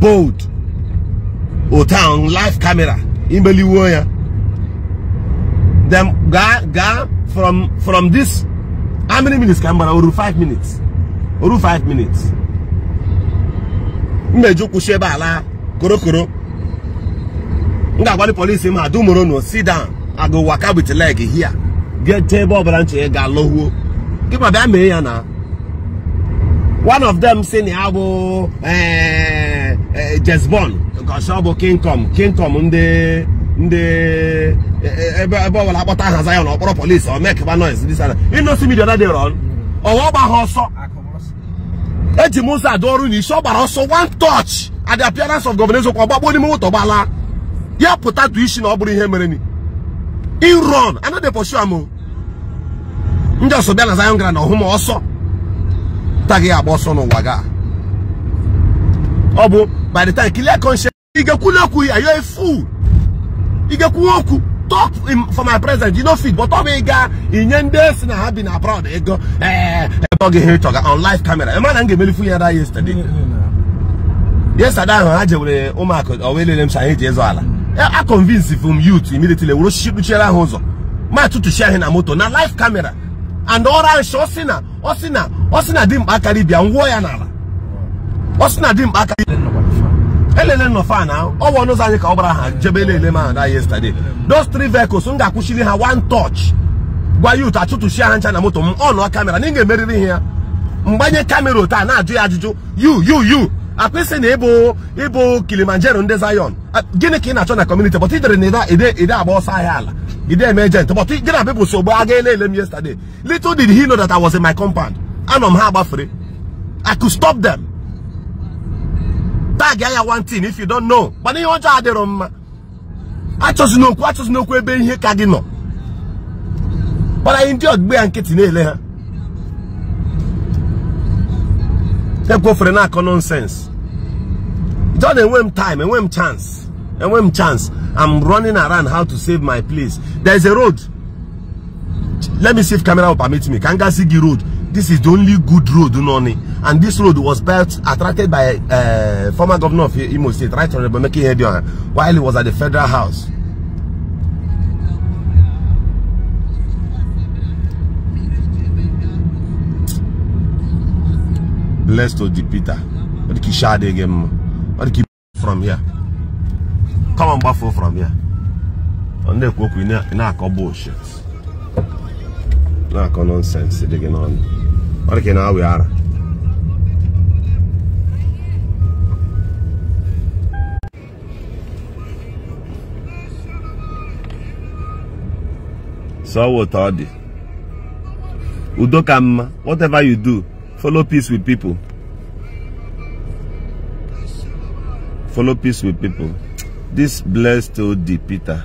A: bold otan live camera imeliwo ya dem gaa gaa from from this how many minutes ka m oru 5 minutes oru 5 minutes mmeju kwụsị ebe ala korokoro m ga-agwa polisi ma no sit down i go waka with leg here get ebe ọbụla nche eh, ga-alọhuo ma bịa mee ya na one of them si na ya bụ ee eh, Eh, eh, jesbon gosi ọ bụ kingcom kingcom ndị ndị eh, ebe ebe ọ bụla akpọta ahaza ya na ọkpọrọ polisi ọ mekeba noise dị sana inosi midia dị rọn ọwa ọgba ha ọsọ eji m ụzọ adụ ọrụ na isi ọ gbara ọsọ one touch at the appearance of governor Ezekwa ọgbagbo n'ime moto gbala ya pụta tụ isi na ọ bụrụ ihe mere ni in run anadị pọshu amụ ndị ọsọ bịa na Zion Grand ọhụ ma ọsọ ta gị agba ọsọ n'ụwa gaa ọ bụ by the time clear conscience ị ga-ekwula okwu are you a fool ị ga-ekwuwe okwu talk for my president you no fit but ọ bụ ị gaa inye ndị e si na ha bi na abroad ego ee eh, ebe ọ ga-ehe chọga on live camera ịma na m ga-emelifu ya da yesterday yesterday ahụ ha jewere ụmụaka owelele m si anyị ji ịzọ ala a convince from youth immediately wuru kpuchiere ahụ ụzọ ma tụtụchi ahị na moto na live camera and ọrụ nshi ọ sị na ọ sị na ọ sị na dimkpa akarị bịa nwụọ ya n'ala ọ sị na dimkpa aka elele nọ fan ahụ ọ anyị ka ọ gbara ha jebe elele ma na yesterday those three vehicles m ga-akwụchiri ha wan touch gwa yut achụtụchi ha ncha na moto m ọ nụọ kamera na ị ga-emeriri ihe ya mgbanye kamera taa na-ajụ ya ajụjụ yu yu yu akpịsị na ịbụ ịbụ kilimanjaro ndị zion gịnị ka ị na-achọ na kọmuniti bọt ijere na ide agba ọsọ ahịa ala ide eme ejent bọt gị na bịbụ sogbu aga ele m yesterday little did he know that I was in my compound anọ m ha agbafere I could stop them bag ya one thing if you don't know mana ihe ọjọọ adịrọ mma achọzina okwu achọzina okwu ebe ihe ka gị nọ mana anyị ndị ọgbe ya nkịtị na-ele ha ekwofere na-akọ nonsense John enwe m time enwe m chance enwe m chance I'm running around how to save my place there's a road let me see if camera will permit me ka m gasị gị road this is the only good road you know, and this road was built attracted by uh, former governor of Imo State right honorable Meki Edion while he was at the federal house blessed to the Peter what you kishade again what the from here come on buffalo from here and they cook in a couple of bullshit Not ako nọnsensị dị gị n'ọnụ ọ dị ka ị na-awị ara so what ọ dị whatever you do follow peace with people follow peace with people this blessed old Peter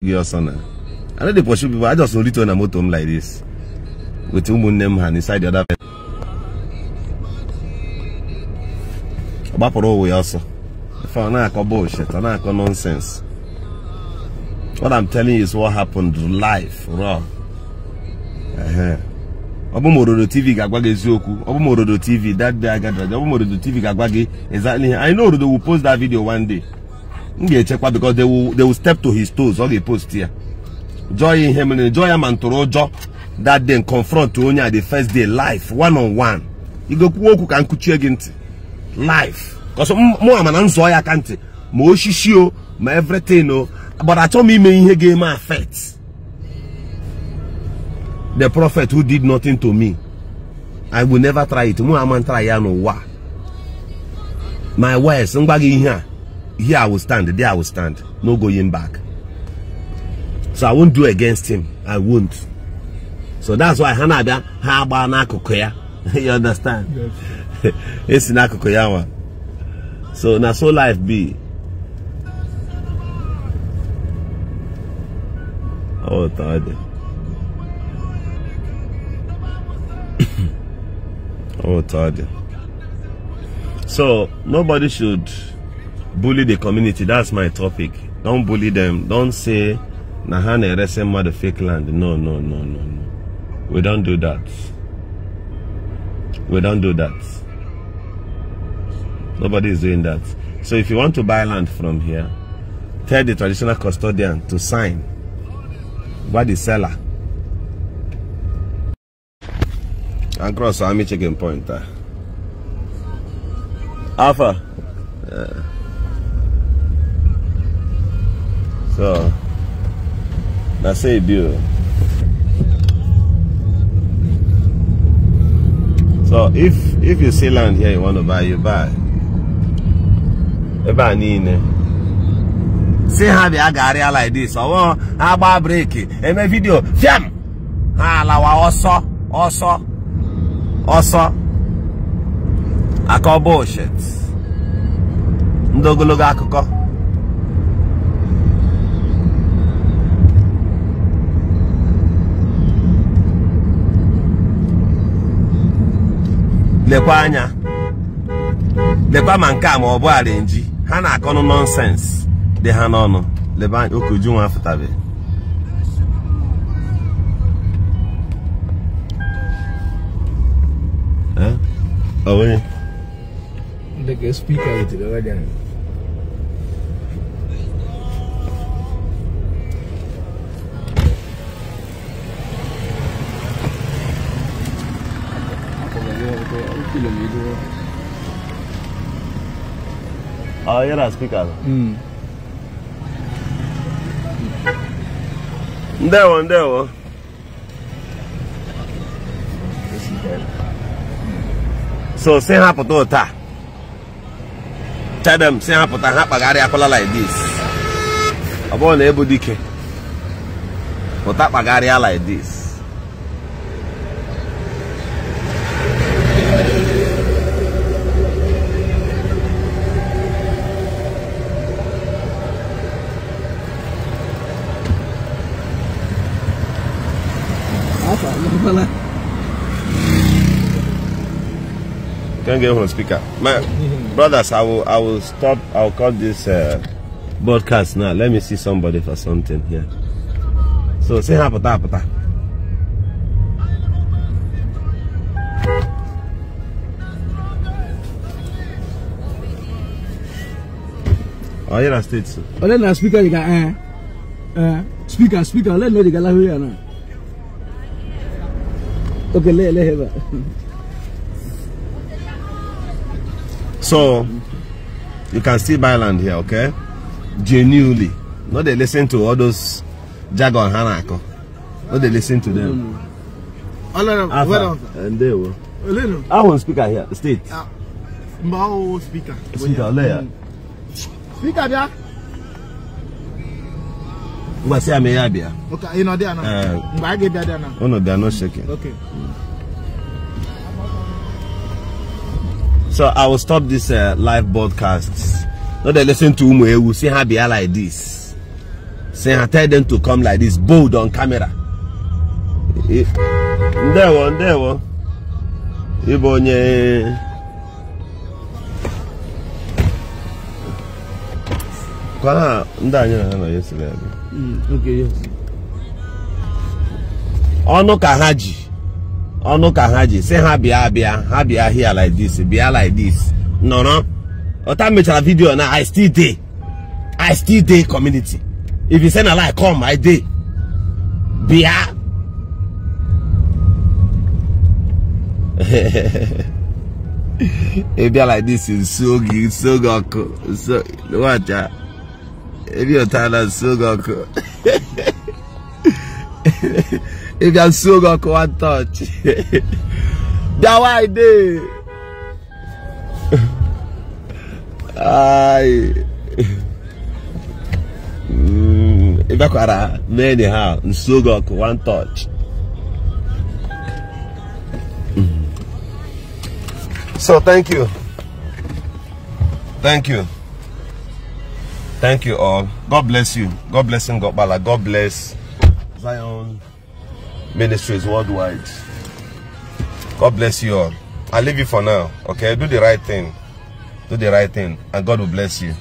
A: Your Giyosana. i no dey pursue people i just only turn na motor home like this with ụmụnne m ha inside the other person ọ gbapụrụ ụwa ya ọsọ ife ọ na-akọ bullshit ọ na-akọ nonsense what i'm telling you is what happened life raw ọ bụ m tv ga-agwa gị eziokwu tv that day i ọ that m tv ga-agwa exactly i know orodo will post that video one day m ga-echekwa because they will, they will step to his toes ọ ga post ya joy ihe mere joy ya ma ntụrụ ụjọ that day confront onye a the first day life one on one You igokwu okwu ka nkuchie gị ntị life kọsọ mụ ama na nzọ ya ka ntị ma osisi o ma everything o gbara achọ m ime ihe ga-eme affect the prophet who did nothing to me i will never try it mụ am ntara ya n'ụwa my words ngwa gị ihe a here i will stand there i will stand no going back so I won't do against him. I won't. So that's why Hanada Haba Nakukoya. You understand? It's Nakukoyawa. So now so life be. Oh tired. oh tired. So nobody should bully the community. That's my topic. Don't bully them. Don't say na ha na-eresi fake land no no no no no we don't do that we don't do that nobody is doing that so if you want to buy land from here tell the traditional custodian to sign by the seller and cross army chicken point ah. alpha yeah. so That's it, dude. So if if you see land here you want to buy, you buy. Ebe a niile. Si ha aga garịa like this, ọwụwa ha gbaa breeki, eme video fiam! Ha alawa ọsọ, ọsọ, ọsọ. Akọ bullshit. Ndị ogologo akụkọ. lekwa anya lekwa ma nke a ma ọ bụ arenji ha na-akọnụ nọnsens dị ha n'ọnụ leba anya okoju nwa afụtabe ọ kilometer. Ah, era as picadas. Hum. Deu, deu. So, sem rapa todo, tá? Tell tá them, sem rapa, tá rapa, gare, acolá like this. Abone, ebo dike. Botar tá pra garear like this. Can't get on speaker. My brothers, I will I will stop. I'll cut this uh, broadcast now. Let me see somebody for something here. So say hi, pata pata. Oh, you're a state. Oh, then the speaker, you got eh, eh, speaker, speaker. Let me know you got la here now. Okay, let let have So you can still buy land here, okay? Genuinely. Not they listen to all those jargon hanako. Not they listen to them. Alright, and they were. I want speaker here, state. Ah, Mao speaker. Speaker there. Hmm. Speaker there. Ngba se ame ya bia. Okay, you know there now. Ngba eh. ge bia there now. Oh no, they are not shaking. Okay. Hmm. so i will stop this uh, live broadcast Not dey listen to umu will see her bia like this see I tell them to come like this bold on camera There one, there one. Ibonye. ha ndị anyị na ha nọ ya siri ebe ọnụ ka ọnụ ka ha ji si ha bịa abịa ha bịa here like this bịa like this nọrọ ọta mechara vidio na i still dey i still dey community if you send a like, come i dey bịa e bịa like this nso oge nso oge ọkụ nso nwacha ebi ọtara nso oge ọkụ If you are so gonna touch. that why they I mm, if I could me anyhow, and so go one touch. Mm. So thank you. Thank you. Thank you all. God bless you. God bless and God bala. God bless Zion ministries worldwide. God bless you all. I leave you for now. Okay, do the right thing. Do the right thing, and God will bless you.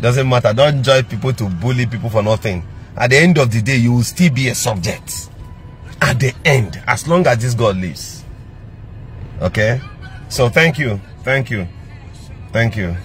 A: Doesn't matter. Don't join people to bully people for nothing. At the end of the day, you will still be a subject. At the end, as long as this God lives. Okay? So thank you. Thank you. Thank you.